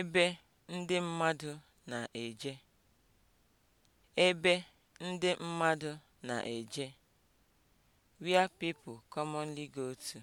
ebe ndị mmadụ na-eje ebe ndị mmadụ na-eje (where people commonly go to)